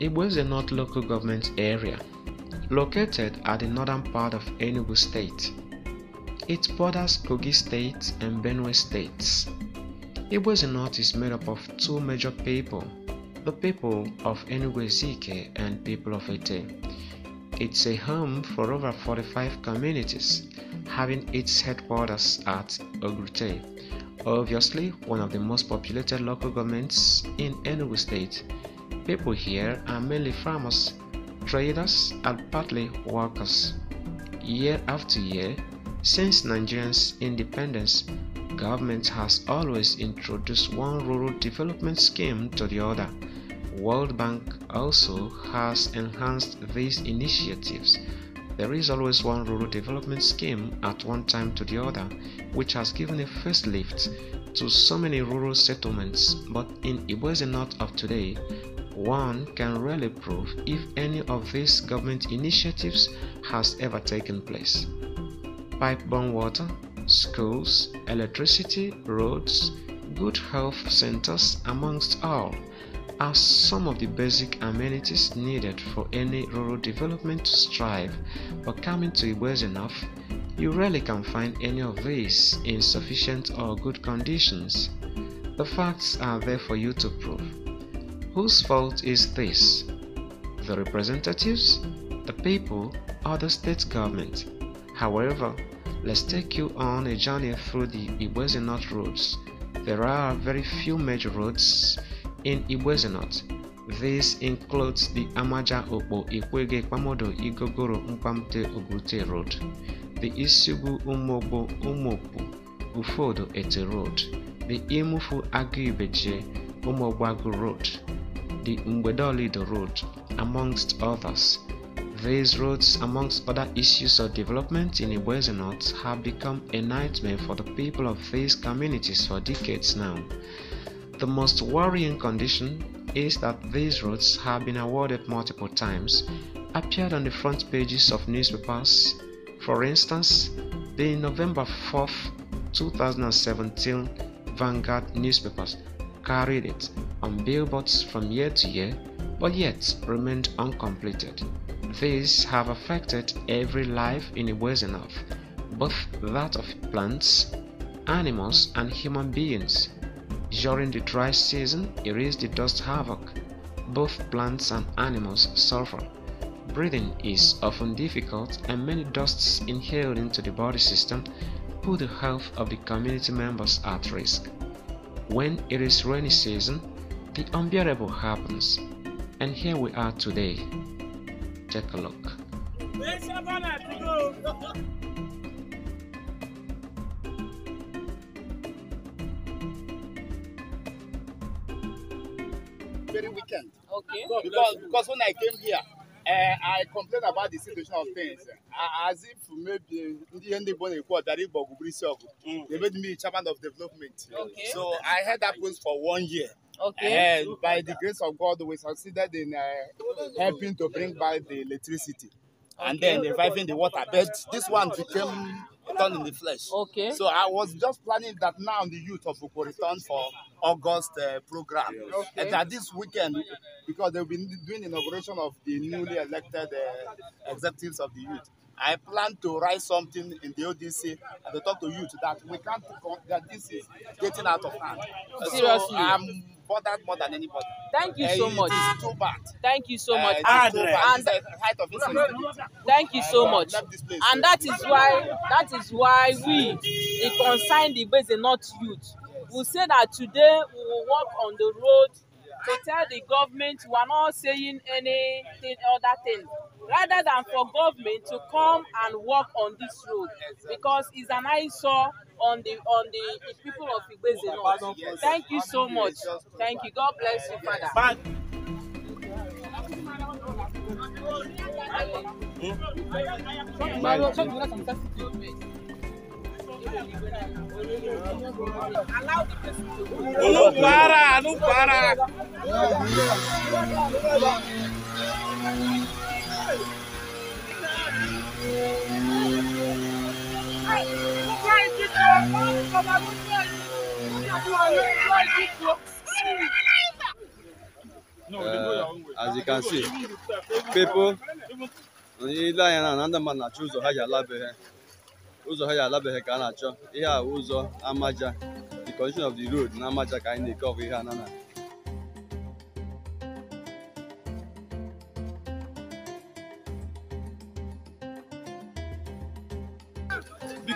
It was a North local government area located at the northern part of Enugu state. It borders Kogi state and Benue states. was a North is made up of two major people, the people of Enugu Ezike and people of Ete. It's a home for over 45 communities, having its headquarters at Ogrute, obviously one of the most populated local governments in Enugu state people here are mainly farmers, traders, and partly workers. Year after year, since Nigeria's independence, government has always introduced one rural development scheme to the other. World Bank also has enhanced these initiatives. There is always one rural development scheme at one time to the other, which has given a first lift to so many rural settlements. But in Iboese North of today, one can really prove if any of these government initiatives has ever taken place. Pipe borne water, schools, electricity, roads, good health centers, amongst all, are some of the basic amenities needed for any rural development to strive, but coming to Igbo's enough, you rarely can find any of these in sufficient or good conditions. The facts are there for you to prove. Whose fault is this? The representatives, the people, or the state government? However, let's take you on a journey through the Iwezinot roads. There are very few major roads in Iwezinot. This includes the Amaja Opo Ikwege Kwamodo Igogoro Mpamte Obrute Road, the Isugu Umobo Umopu Ufodo Ete Road, the Imufu Aguibeje Umogbagu Road, the Road, amongst others. These roads, amongst other issues of development in Iwezi North, have become a nightmare for the people of these communities for decades now. The most worrying condition is that these roads have been awarded multiple times, appeared on the front pages of newspapers. For instance, the November 4, 2017 Vanguard newspapers carried it on billboards from year to year but yet remained uncompleted. These have affected every life in ways enough, both that of plants, animals, and human beings. During the dry season, it is the dust havoc. Both plants and animals suffer. Breathing is often difficult, and many dusts inhaled into the body system put the health of the community members at risk. When it is rainy season, the unbearable happens, and here we are today. Take a look. Very weekend. Okay. So because, because when I came here, uh, I complained about the situation of things. Uh, as if maybe ndị ndị Igbo na They made me chairman of development. Okay. So I had that post for one year. Okay. And eh, by the grace of God, we succeeded in uh, helping to bring by the electricity. Okay. And then reviving the water. But this one became done in the flesh. Okay. So I was just planning that now the youth of return for August uh, program. Yes. Okay. And that this weekend, because they've been doing inauguration of the newly elected uh, executives of the youth. I plan to write something in the ODC and to talk to youth that we can't that this is getting out of hand. Seriously. So I'm bothered more than anybody. Thank you uh, so it much. too bad. Thank you so uh, much. And, and the height of this Thank you so uh, much. And that is why that is why we, the concerned base, and not youth, we say that today we will walk on the road to tell the government we are not saying anything other thing rather than for government to come and work on this road because it's an eyesore on the on the, people of Igbeze North. Thank you so much. Thank you. God bless you, Father. Bye. Não para, não para. Uh, as you can see, people ile anya na ndị mmadụ na-achọ ụzọ ha ji alabeghị ụzọ ha ji alabeghị ka a na-achọ ihe a ụzọ amaja the condition of the road na amaja ka anyị na-eke ọgụ ihe a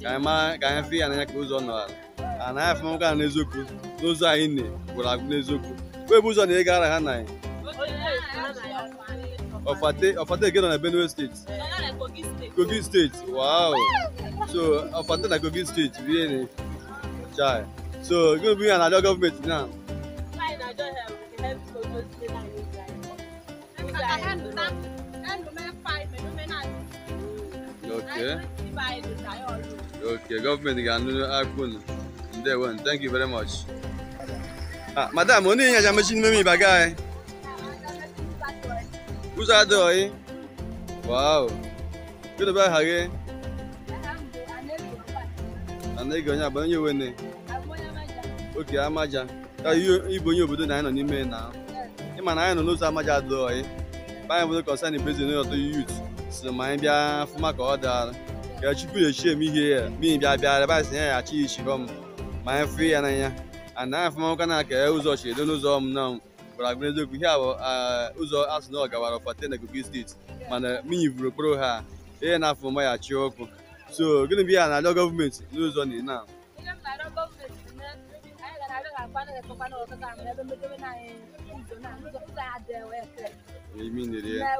ka anyị fụ ya n'anya ka ụzọ nọ ala ana anyị afụma nwoke ahụ n'eziokwu n'ụzọ anyị ne gwụrụ agwụ n'eziokwu wee bụ ụzọ na ị gara ha na anyị ọfate ege nọ na benue steeti kogi steeti wow so ọfate na kogi steeti bụ chai so gịnị bụ ihe na-adịọ gọọmenti na Okay. Okay, gọọmenti ga-anụ akpụ unu. Ndewo, thank you very much. Ah, madam, onye ihe aja mechi n'ime ịba gaa Ụzọ adịghị. Eh? Wow. Kedu aha gị? Anaghị onye abụ onye wene. Oke amaja. Ka ịbụ onye obodo na anyị nọ n'ime na. Ị ma na anyị nọ n'ụzọ amaja adịghị. Banyere obodo kọnsani bezin n'ọtọ yut. so ma anyị bịa fụma ka ọ dara. ka Chukwu na-echi m ihe ya mii bịa bịa yabasị ya ya achi ichiro m ma anyị fụ ya n'anya a na afụmaka na aka ụzọ chi edo n'ụzọ m na gwara agụ eziokwu ihe abụ ụzọ asụ na ọgawara ọfate na Kogi steeti mana minyi vụrụ okporo ha ihe na afụma ya chi ọkụ so gịnị bụ ihe na adọ gọọmenti n'ụzọ na ina imi nere ya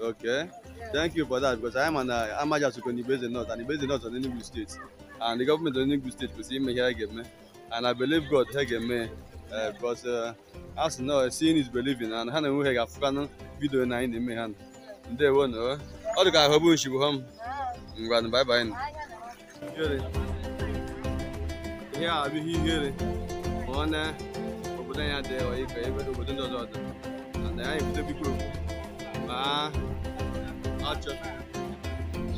Okay. Yeah. Thank you for that because I am an uh, Amaja Sukoni based in North and based in North on Enugu State. And the government of Enugu State could see me here again. And I believe God here me. Uh, because uh, as now seeing is believing and ha na-enwe ga afụkanụ vidio na anyị na-eme ha ndewo na ọ dị ka ahụ bụ nshi bụ ha m ngwanụ baịbaị ihere ihe a abụghị ihere ma ọ na obodo anyị adịghị ọyị ka ebe obodo ndị ọzọ and I am Toby Group. My archer.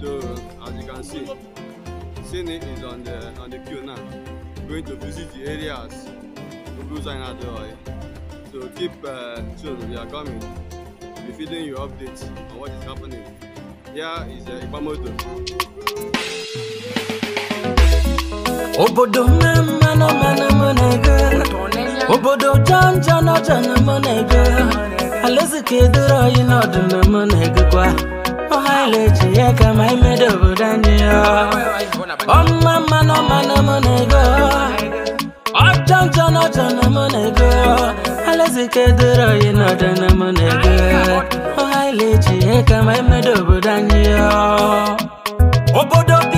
So as you can see, Sydney is on the on the queue now. Going to visit the areas of Busanadoi. So keep uh, tuned, we are coming. We'll be feeding you updates on what is happening. Here is uh, Ibamoto. Obodo mma nọ mana mụ na Obodo janja nọ jana mụ na alaeze ka edoro anyị n'ọdụna m na-egokwa ọhaile ji ya ka ma imedo obodo anyị ọmma mmanụ mmanụ m na-ego ọjọ njọ n'ọjọ na m na-ego alaeze ka edoro anyị n'ọdụna m na-ego ọhaile ji ya ka ma imedo obodo anyị obodo bi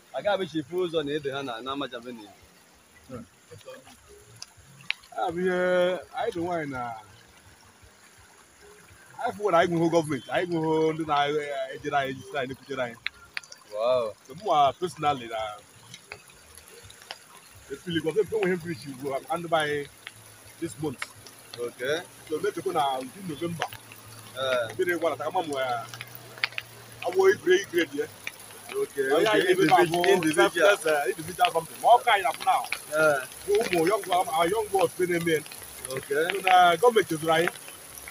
agabichifu ụzọ na ede ha na amaja benin anyị bụ nwaanyị na anyị fụwara anyị gọọmenti anyị nwụhụ ndị na-ejere anyị ejisiri anyị nekwutere anyị mma personally na efili gọọmenti ugbu a ndị anyị this month okay na ndị novemba mmiri gwara ta ama m awụ igre igre ya Okay, oh, okay, okay. individual, individual. That's, uh, individual something. More kind now. Yeah. Umo, young, our young boys, been men. Okay. So, uh, government is right.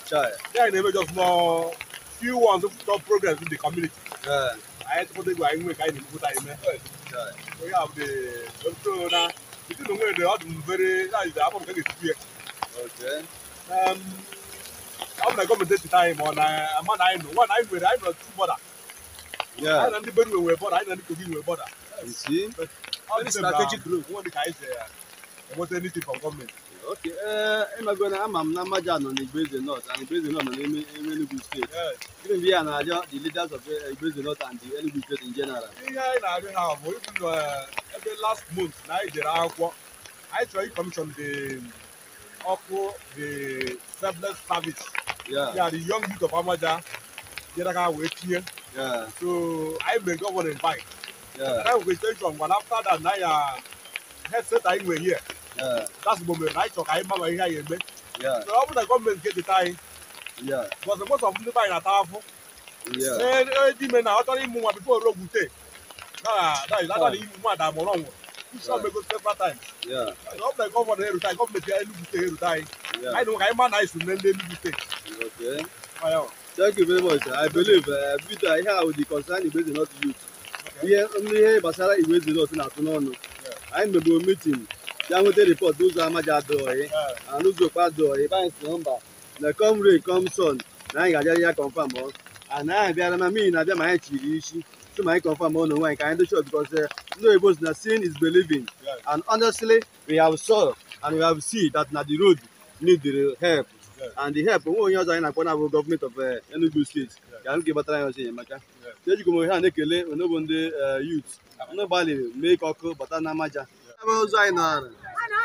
Sure. Then they just more few ones of top programs in the community. Yeah. I had to go and make I need to time. Sure. We have the so now. You know where they are very. That is the album can Okay. Um. I'm not going to take the time on a man I know. One I know, I know two brother. Yeah. anyị na ndị benue nwere bọda anyị na ndị kogi nwere bọda ọ dị strategic group nwanne ka anyị si enweta anything from government. Okay, Uh, I'm going ama m na mmaja on the Brazil North and the Brazil North nọ n'ime Enugu steeti gịnị Even ya na-arịọ the leaders of the uh, Brazil North and the Enugu steeti in general Yeah, anyị na-arịọ ha bụ ibu ebe last month na anyị jere akwụkwọ anyị come from the ọkụ the selfless service ya the young youth of Amaja going to wait here. Yeah. So I may go on and buy. Yeah. That was station one after that I now headset I were here. Yeah. That's the moment I talk I mama here in So Yeah. So after come and get the time. Yeah. But most of them buy at half. Yeah. Then eh di eh, men now tell him more before road gute. Nah, that is that is more than more wrong. You one may go several times. Yeah. So for the government here time government here gute here time. I know I man I should name gute. Okay. Ayo. Thank you very much. I believe uh, Peter ihe ahụ dị concern Igweze North youth. Ihe ihe gbasara Igweze North na I am Anyị meburu meeting ya nweta report n'ụzọ amaja adịghị na n'ụzọ okpa adịghị ebe anyị si na mba come rain come sun na anyị ga ya confirm ọ And anyị abịara na mmiri na-abịa ma anyị chiri isi so ma anyị confirm ọ eh? no onwe anyị ka anyị sure because eh, ndị oyibo si na seeing is believing and honestly we have saw and we have seen that na the road need help and help nwe onye ọzọ anyị na-akpọ na-abụ gọọmenti of eh, Enugu steeti ka nke gbatara ya ọzọ enyemaka ejikwa m ohe a na-ekele onogbo ndị eh, yut ndị gbalịrị mee ka ọkụ bata na amaja ebe ụzọ anyị niri ọ nọ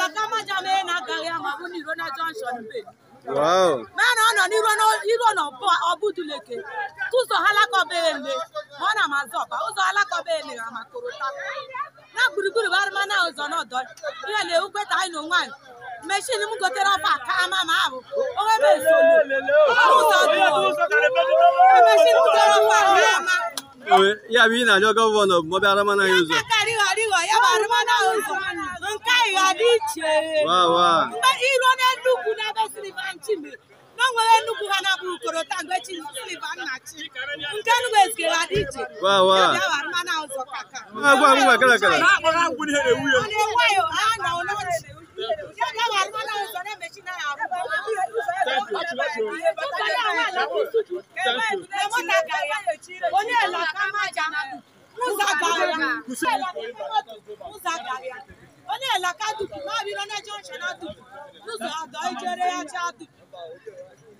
na ụzọ na gburugburu na ụzọ n'ọdọ ihe na ewu kweta anyị n'onwe anyị meshin m gotere ọfa ka ama ma abụ onwe m ya bụ ị na-arịọ gọvanọ bụ mọbịa arụmana ya ụzọ nke anyị ga iche iruo n'elu ugwu n'ebe siri ba nchimiri nwere Enugwu ha na-abụrụ Ukorota mgbe chi Silva Nnachi nke Enugu ezigere adị iche mana ụzọ kaka na-enweghị ha nọ n'ọchị onye elakamaja ụzọ gara ya onye elaka dupu ma biro na junction adupu n'ụzọ adọ ijere ya ji adupu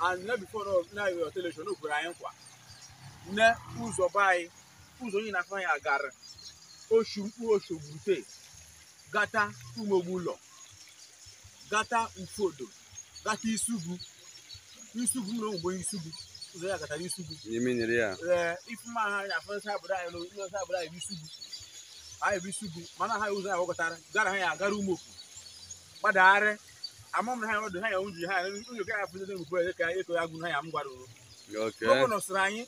and na bifo na iwe ọteleshọn o kwere anyị nkwa na ụzọ be anyị ụzọ onye na-afọ anyị agara oshu mkpu oshogbute gata umogbu ụlọ gata mfodo gata isugu isugu na ogbo isugu ụzọ ya gatara isugu ee eh, ifuma ha na afọsa obodo anyị n'osa obodo anyị bụ isugu anyị bụ isugu mana ha ụzọ ya gwakọtara gara ha ya agara okwu gbadagharị amam na ha ọdụ ha ya unji ha unyi ka afọ ndị mkpu ka eko ya gụ ha ya m gwara o gọvanọ sịrị anyị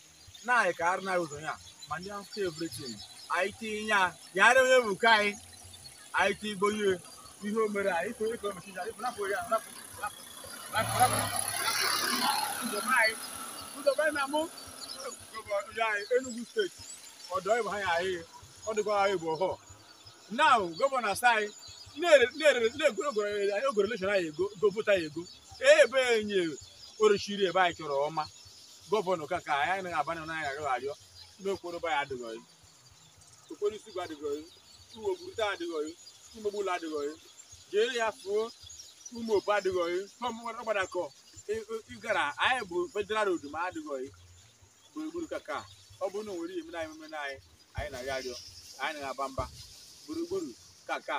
na-ayị ka arụ na-ayị ụzọ ya ma ndị ahụ ka evritin anyị tinye ya ya ara onye bụ ka anyị anyị tinye igbo ihe ihe o mere anyị too eko mechi ya ịpụ napụ ya napụ napụ napụ ụzọ anyị ụzọ anyị na mụ Enugu steeti ọdọ ịbụ ha ya anyị ọ dịkwa bụ ọhọ now gọvanọ sị anyị na ogoreleshon anyị ego govota ya ego ebe e, enye eh, orochiri ebe anyị chọrọ ọma gọvanọ ka ka anyị anaghị abanye na anyị agaghị arịọ n'okporo be ya adịghị okporo isi gwa adịghị uwogurute adịghị umegbula adịghị jere ya fuo ụmụ opu adịghị ọgbadakọ ịgara anyị bụ federal road adịghị gburugburu kaka ọ bụrụ na o nwere ihe mere anyị anyị anyị na-arịọ anyị na-aba mba gburugburu kaka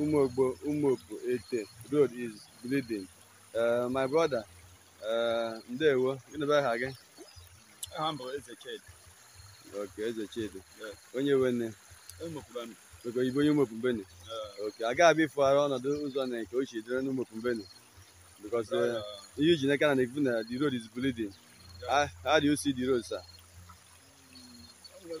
Umogbo Umuopu Ete road is bleeding. Uh, my brother, eh, Ndewo, gịnị aha gị? Aha m bụ Eze Chidi. Eze Chidi. Onye onye Ok, aga abịa ịfụgharị ụzọ na nke o si dịrị n'Umopumbeni. Because eh, ihe iji n'aka na na-ekwu na the road is bleeding. Yeah. Ah, how, do you see the road, sir? Mm,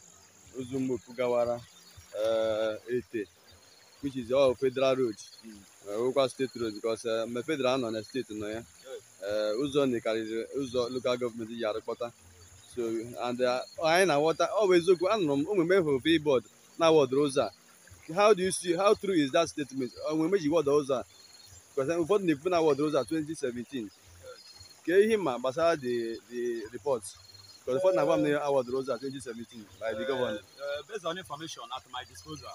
Ozumboku gawara eh, Ete which is all oh, federal road nwekwa eh, steeti road because eh, mgbe federal nọ na steeti nọ ya ụzọ nyekarịrị ụzọ local gọọmenti ji arụkpọta so and anyị na-aghọta ọ bụ eziokwu anụrụ m omume hụrụ billboard na-awọdoro ụzọ a how do you see how true is that statement onwe ji wọda ụzọ a ụfọdụ na-ekwu na awọdoro ụzọ a 2017 ka ihe ma gbasara the the report Because the first Navam near Howard Rose at age by the governor. Uh, uh, based on information at my disposal,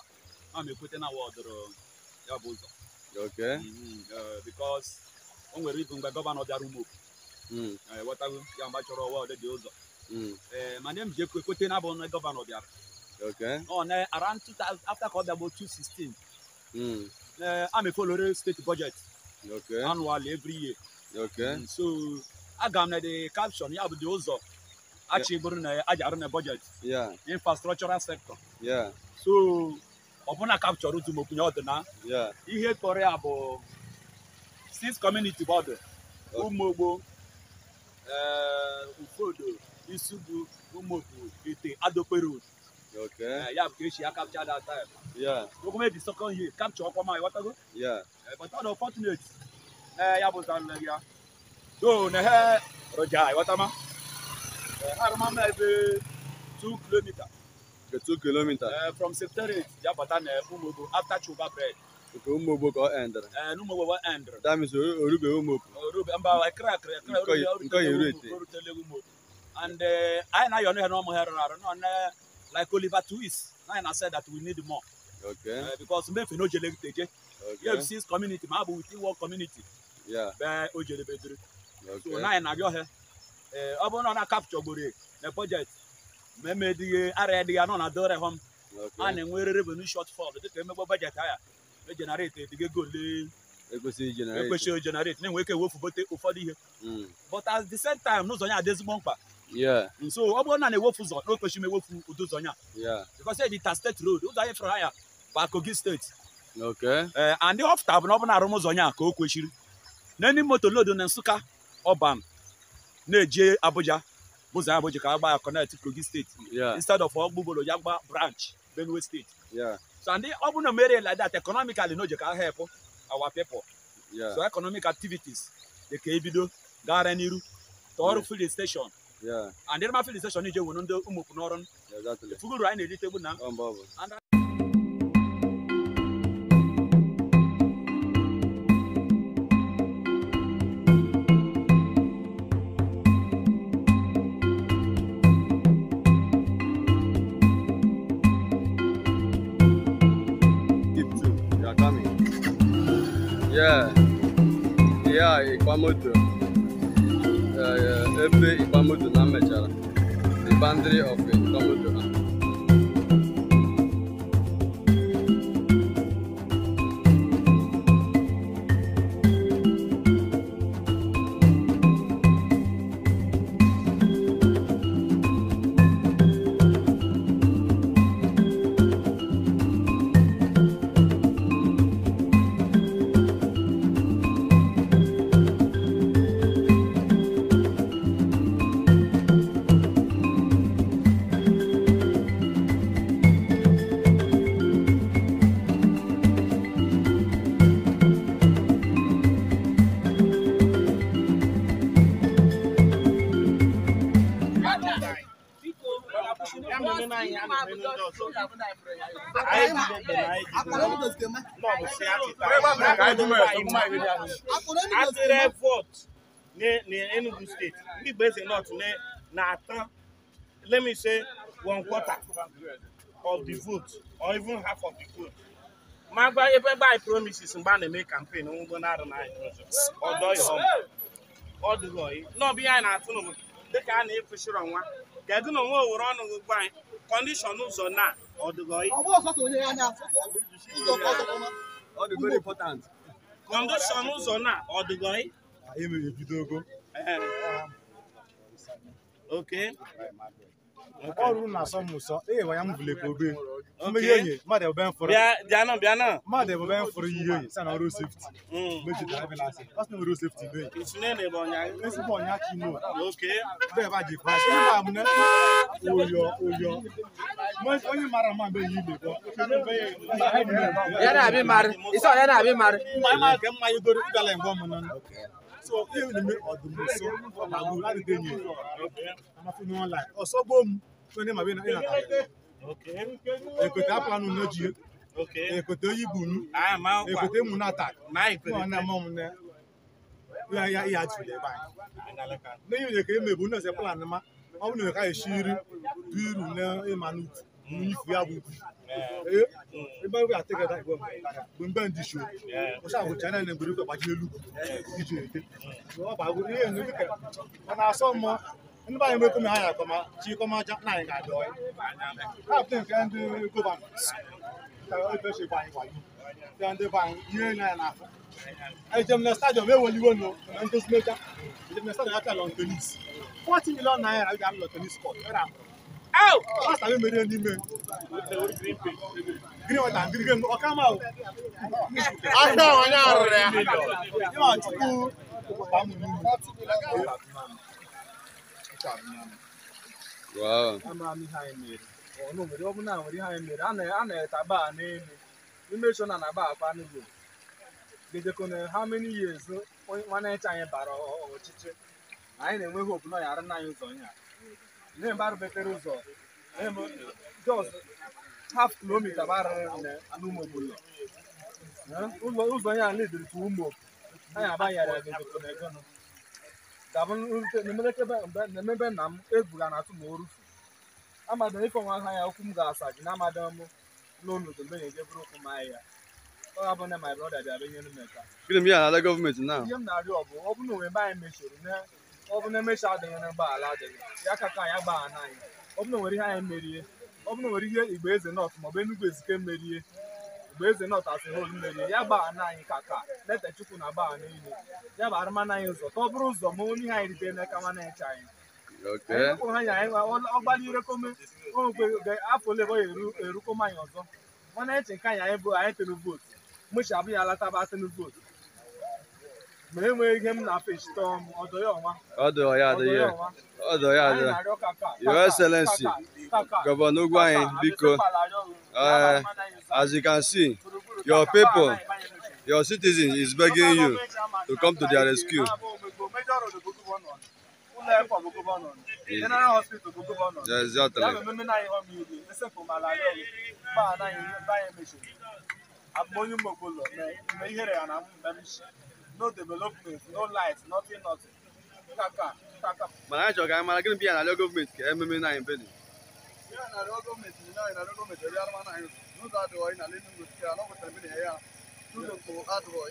I'm putting Howard uh, Yabuzo. Okay. Mm-hmm. Uh, because when we read by governor Darumo, mm. uh, what I will Yamachoro Howard Yabuzo. Mm. Uh, my name is Jekwe Kotena Bon, governor Darumo. Okay. On oh, uh, around 2000, after called about 2016, mm. uh, I'm a follower state budget. Okay. Annually every year. Okay. Mm, so, I got the caption, yeah, but the also achị bụrụ na a ji na budget infrastructural sector so ọbụna kapchọrọ dum okwunye ọdụ na ihe kpọrọ ya bụ six community bọdụ ụmụogbo eh, ufodo isugu ụmụotu ite adope road eh, ya bụ ka esi ya kapcha that time okwume di second year kapcha ọkwa ma ịghọtago eh, but ọ dị unfortunate ya bụ zanle ya do na he roja ịghọtama harama mɛ bɛ two kilometer. Okay, two kilometer. Uh, from september jabata na eh, umobo after chuba bread. Okay, umobo ka ɛndere. Eh, Ɛɛ numobo wa ɛndere. That means olu bɛ umobo. Olu bɛ nba ekira ekira ekira olu bɛ olu tɛ umobo olu tɛ legu umobo. And ayi na yɔnu yɛ n'ɔmu hɛrɛ la rɛ n'ɔnɛ like Oliver Twist na yɛ na said that we need more. Okay. Uh, because mmefe no jele teje. Okay. EFC's community maa bu within one community. Yeah. Bɛɛ o jele bɛ duru. Okay. So na yɛ na yɔ hɛ. ee ọ bụrụ na ọ na-akapchọgburu na bọjetị ma eme dịghị ara ya dịghị anọ na dore hom a na-enwe revenue shortfall dịka emegbo bọjetị aya ejenerate e edigo ego ole ekwesịghị generate na-enwe ike bote ụfọdụ ihe hmm. but at the same time n'ụzọ ya adị ezigbo mkpa nso ọ bụrụ na na-ewefu ụzọ na okwechi m ewefu ụdị ụzọ ya because e ji ta steeti bụ ọ bụ na arụm ka o kwechiri na moto lodo na Nsụka ọban na-eje Abuja ụzọ ya Abuja ka agba ya connect Kogi steeti instead of ọgbụgboro ya gba branch Benue steeti so and ọ bụrụ na mere like that economically no, n'oje ka help our people so economic activities dị ka ebido gara n'iru tọọrụ filling station and ịrịma filling station ije nwere ndị ụmụ n'ọrụ fuguru anyị na-erite egbu na Igbamoto eh, eh, ebe Igbamoto na mechara the boundary of Igbamoto na atịrị vot n'Enugu steeti ndị Igbo Eze North na-ata let me say one quarter of the vote or even half of the vote ma gba ebe gba i promises mgbe a na-eme campaign ngwo na arụ na ọdụghị ọyị n'ọbụ ihe anyị na-atụ n'ụmụ dịka a na-ekwesịrị ọnwa kedu na onwe owere ọnụ gị gwa anyị condition ụzọ na ọdụgọị condition ụzọ na ọdụgọị ok ọrụ na-asọ m ụsọ eyewa ya m vulekwa obe mmeghe onye mmadụ ebe m fụrụ bịanụ bịanụ mmadụ ebe m fụrụ ihe sa na ọrụ sefti mm. na na ọrụ sefti be ọnya ji ma oyo oyo onye mara mma so ihe na-eme ọdụm nso agụ adịghị enyi amafụnụ ọnlaịn ọsọ gboo m onye ma bịa na ekweta apụlanụ n'oji ekweta oyi bụ nu ekweta emu na-ata na mọ m ya ya jụ ebe anyị n'ihi na ka emebu nọọsụ plan ma ọ bụ na ka esi nri dị uru na ịma nfia bubu ee ebe a take that one mgbe mbe ndị show ọsọ ahụ chana na mgbere gbaji elu iji ete ọbago ihe enu dịka ọ na-asọ mmụọ ndị banyere mekọ ma ha ya akọma chi kọma aja na anyị ga-adị ọya kaptịn nke ndị gọvanọ ka ebe shi gbanyị gbanyị ya ndị banyị ihe na ya na-afọ ejem na stadiọm eweliwo nọ na ndozi meja ejem na stadiọm ya pịa lọn tenis 40 milion naira ga-alụ lọn tenis kọt pasta oh! mi mere n'ime onye m nwere ihe anyị mere a na-eta baa n'elu na akwa anyị bara anyị nya ndị mba rubetere ụzọ just half kilomita bụ arịrị n'ụmụ obodo ụzọ ya na tu ụmụ anyị agbanyere egonegono dabụ nemebe nna m ebuga na atụ ma o rufu amadọ ife nwa ha ya ụkwụ m ga-asa gị na amadọ m n'onodo mgbe na-eje bụrụ okwu m ahịa ọ ga na my brother bịa benyere m eka gịnị m ya na-ala gọọmenti na ihe m na-arịọ bụ ọ bụrụ na onwe ebe anyị mechiri ọ bụ na emecha adịghị na ala adịghị ya ka ka ya gbaghana anyị ọ bụ na nwere ihe anyị merie ọ bụ na nwere ihe igbe eze nọt maọbụ enugwu ezike merie igbe eze nọt asị hol merie ya na anyị ka ka leta chukwu na gbaa ile ya bụ arụmana anyị ụzọ ka ọ bụrụ ụzọ ma onye ihe anyị rite n'aka mana echa anyị ọgbalire afọ ole ọ erukoma anyị ọzọ mana eche nke anyị anyị bụ anyị tụrụ vootu mụchi abụghị ya vootu ma enweghị ihe m na-apịchite ọdọ ya ọnwa ọdọ ya adị ya ọdọ ya adị your excellency gọvanọ ugwu anyị biko as you can see your people your citizen is begging you to come to their rescue general hospital bụ exactly. no development no light nothing nothing kaka kaka. mana anyị chọrọ ka anyị mara gịnị bịa narịọ gọọmenti ka ememe na anyị mbe dị. bịa narịọ gọọmenti na anyị narịọ gọọmenti ebe arụma na anyị n'ụzọ adịghị na ala enugwu nke anọ kwetara mbe na ya n'ụzọ mkpo adịghị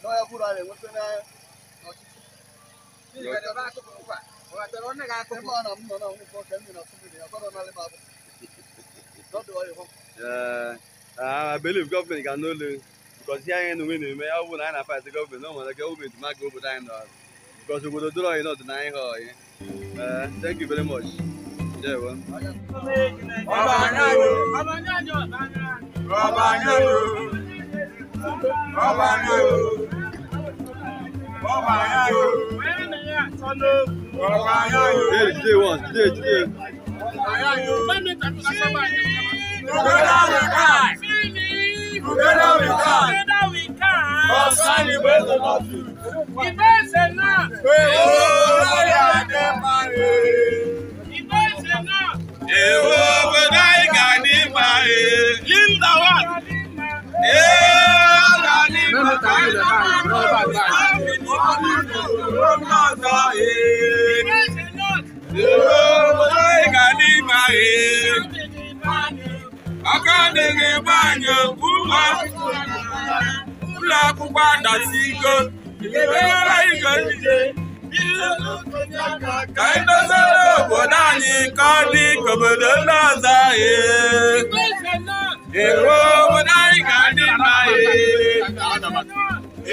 n'ọya bụrụ anyị enweta na ọchịchị. n'ihi na ọba akụkụ nkwa ọba chọrọ ọnụ ga-akụkụ. ebe ọ na m nọ na nwụkwọ ka m nọ na sụmiri ya ọgọdọ n'ala m abụ. n'ọdụ ọyị hụ. ee ah, I believe government can no lose. bikọzi ihe anyị na onwe na-eme ọ bụrụ na anyị na-afazi gọọmenti na ọmụrụ aka gọọmenti ma ga obodo anyị n'ọrụ bikọzi obodo doro anyị n'ọdịna anyị ha ọyị thank you very much jewo Today, one, today, today. Together we can. Together we can. Concern ìgbésẹ̀ náà sí. Ìgbésẹ̀ náà. Èwo lórí àdé parí. Ìgbésẹ̀ náà. Èwo gbẹdá ìgà ní parí. Linda wa. Èwo là ní parí. Ìgbésẹ̀ náà. Èwo gbẹdá ìgà ní parí aka na-enye ebe anyị ụlọ akwụkwọ adasi iko ebeela iko njide ka anyị doziere obodo anyị ka ọ dị ka obodo ndị ọzọ anyị ero obodo anyị ga-adị mma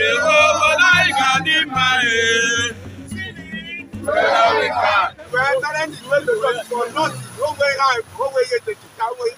ero obodo anyị ga-adị mma Where are we? Where are we? Where are we? Where Where are we? Where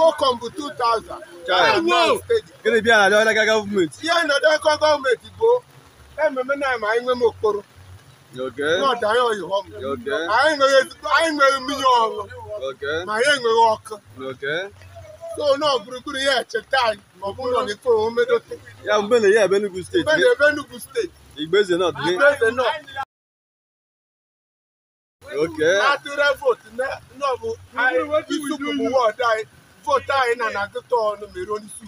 Kọkọm bụ 2000 gịnị bịa na Ọnaga gọọmenti ihe nọdụ aka gọọmenti bụ ememe na ma anyị nwere okporo anyị mmiri ma anyị ọkụ so na gburugburu ya echeta ya mgbe ebe n'ugwu steeti mgbe ebe n'ugwu steeti Igbeze nọ atụrụ fota ina na agụta ọnụ mere onyeisi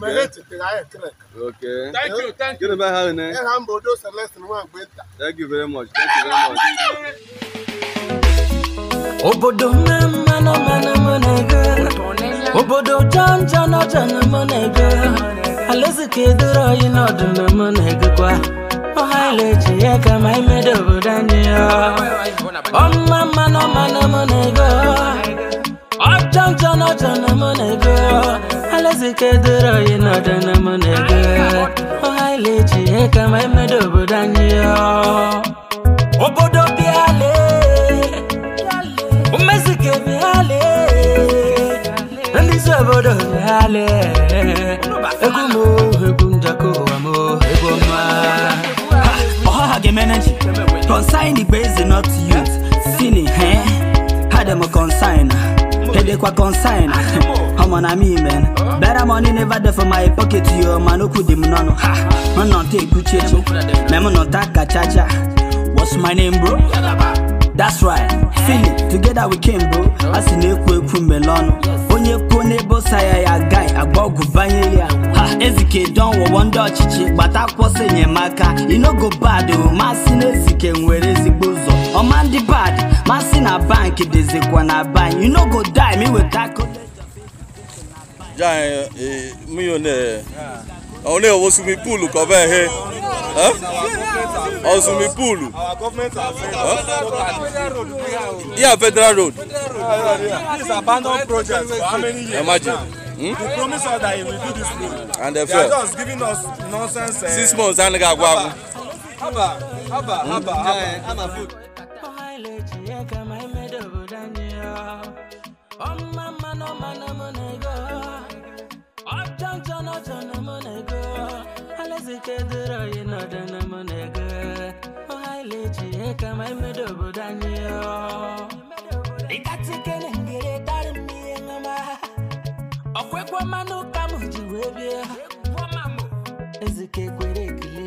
mere echetere anyị krek thank you thank you gịnị bụ aha unu ịha mba odo celestin nwagbe nta thank you very much thank you very much obodo mmanụ mmanụ m na-ege obodo janja n'ọja na m na-ege alaeze ka edoro anyị n'ọdụ na m na-egekwa ọha ile-eji ya ka ma imedo obodo anyị ya ọmụma mmanụ mmanụ m na-ege ọjọjọna jọna m na-ebe alazikadoro anyị n'ọdana m na-ebe ọha ileji ihe ka ma emedo obodo anyị obodo bịale mmezike bịale ndịzi obodo bịale egwu m egwu njọkọ ụwa m egwu ọma ọha ga-emeneji consign the base not youth sini he eh? ha dem consign dey kwa consign ọmọ na me man better money never dey for my pocket yo ma no ku dem nono ha mo no take good change me mo no taka chacha what's my name bro that's right Feel it together we came bro I asi na-ekwu ekwu melọnụ onye kwuo n'ebe ụsa ya ya gai agba ọgwụ banye ya ha ezike don wọwọ ndị ọchịchị gbata akwụkwọ si no go bad oh. masị na ezike nwere ezigbo ụzọ Omandi bad, Masi na bank, it is a na bank. You no go die, me with that. Giant, eh, eh, me on there. Àwọn ilé ìwọ swimming pool kọ bẹ́ẹ̀ he. Our swimming pool. Yeah, federal road. This abandoned project for how many years? Imagine. Hmm? They promised us that he will do this road. And they, they failed. are just giving us nonsense. Uh, Six months and they got Haba, haba, haba, haba, haba. onye ka ma emedo obodo anyị ọmma mma na na mụ na ego ọjọ njọ na ọjọ na mụ na ego alaeze ka edoro oyi na na mụ na ego ọhaile ji ihe ka ma emedo obodo anyị ịkatikele ngere dari m ihe ji wee bie ezike kwere ekele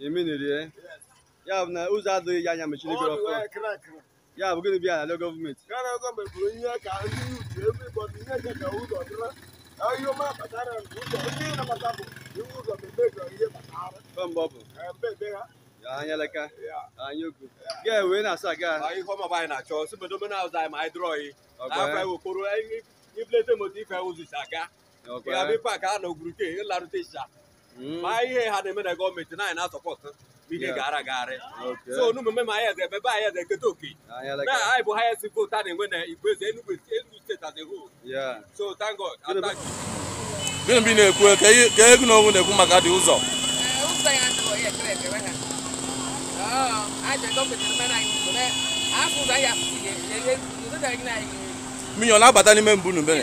emenerie ya bụ na ụzọ adịghị ya anya mechiri gị ọkụ ya bụ gịnị bịa ala gọọmenti mgbe ọ bụ e anya leka anya okwu ga wee na-asa ga ihe ọmaba anyị na-achọ si bodo mena ụzọ anyị ma anyị dụrọ yi afọ anyị wokporo iflete moto ife ụzụ si aga ya bụ e. ife aka a na ogwuruke ịlarụta ịsha ma ihe ha na-eme na gọọmenti na anyị na-asọpọtụ ihe gara agharị so n'omume ma anyị eze ebe anyị eze eketa oke na anyị bụ highest vote a na-enwe na igwe eze Enugu steeti as a whole so thank God gịnị ị na-ekwu ka egwu na onwe na-ekwu maka dị ụzọ mmiri ọ na-abata n'ime mbụ n'ubere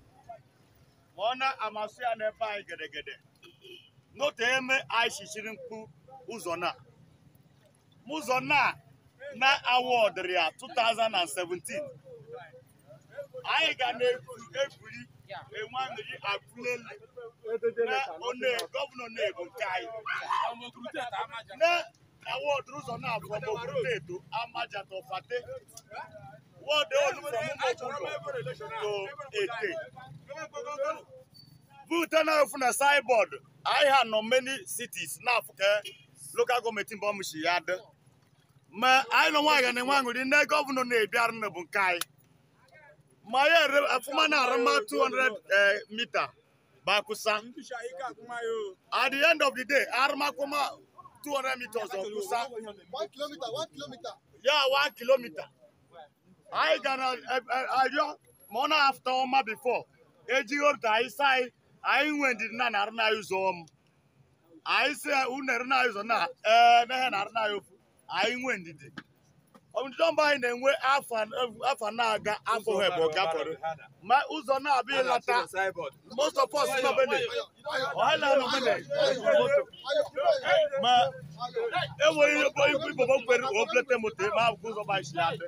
ka ọ na-amasị ya n'ebe anyị gedegede n'otu eme anyị chichiri mkpu ụzọ na ụzọ na na awọdịrị ya 2017 anyị ga na-ebuli enwamiri akụleli na one gọvanọ na-ebo nke anyị na awọdịrị ụzọ na abụọ maọbụ eto amajatọfate What they want to do Voter now from the sideboard. I had no many cities now for local government in Bomushi had. Ma I don't want anyone with the governor near Bjarne Bunkai. My Fumana Rama 200 meter. Bakusa. At the end of the day, Armakuma 200 meters of Kusa. One kilometer, one kilometer. Yeah, one kilometer. anyị gara arịọ ma ọ na afụta ọma bifo ejighị ota anyị sa anyị anyị nwe ndidi na arụ na ụzọ m anyị si unere na ụzọ na ee mehe arụ na ofu anyị nwe ndidi ndidi ọmba anyị na-enwe afọ na-aga afọ hebo gafere ma ụzọ na-abịa ịlata most of us nọbene ọhala nọbene ma enweghị igbo igbo kwere oblete moto ma ụzọ ba isi adị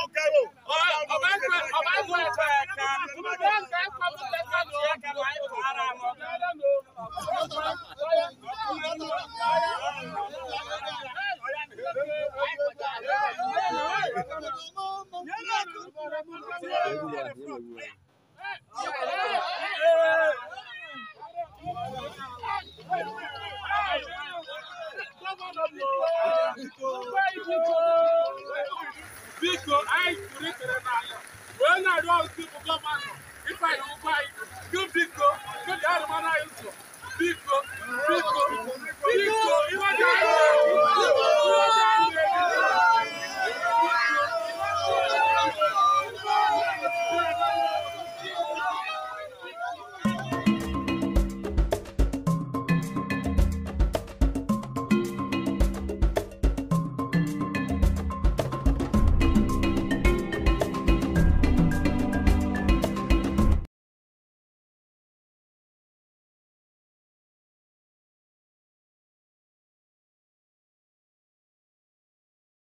ọba ń wọ ẹ̀fẹ̀ ẹ̀ka ọba ń wọ ẹ̀fẹ̀ ẹ̀ka ló lẹ́ka ló ẹ̀ka ló ayé kò ara mọ́.